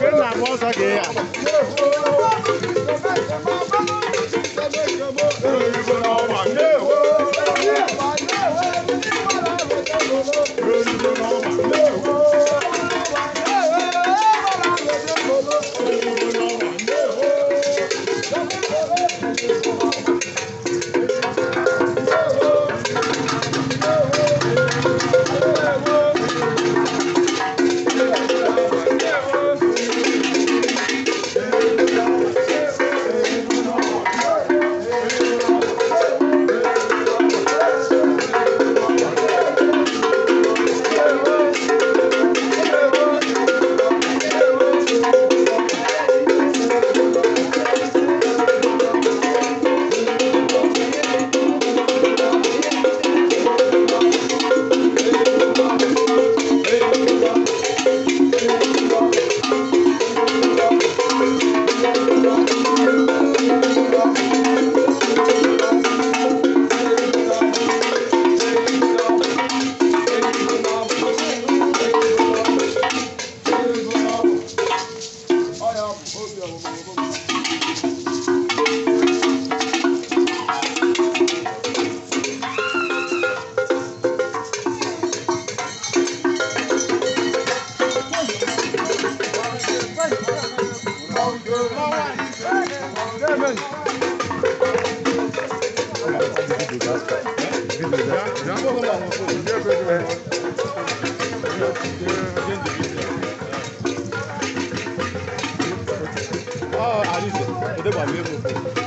跟哪国说的呀？Oh, I need to. But they were able to.